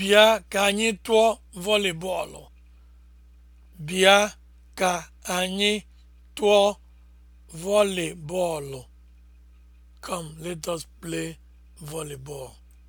Bịa ka anyị tụọ vọlị Bịa ka anyị tụọ vọlị bọọlụ. Come, let us play volleyball.